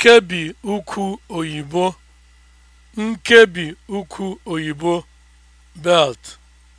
Nkebi ukwu oyibo, Nkebi ukwu oyibo (belt)